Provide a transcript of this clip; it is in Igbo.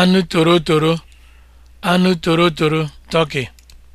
anụ torotoro anụ toro turkey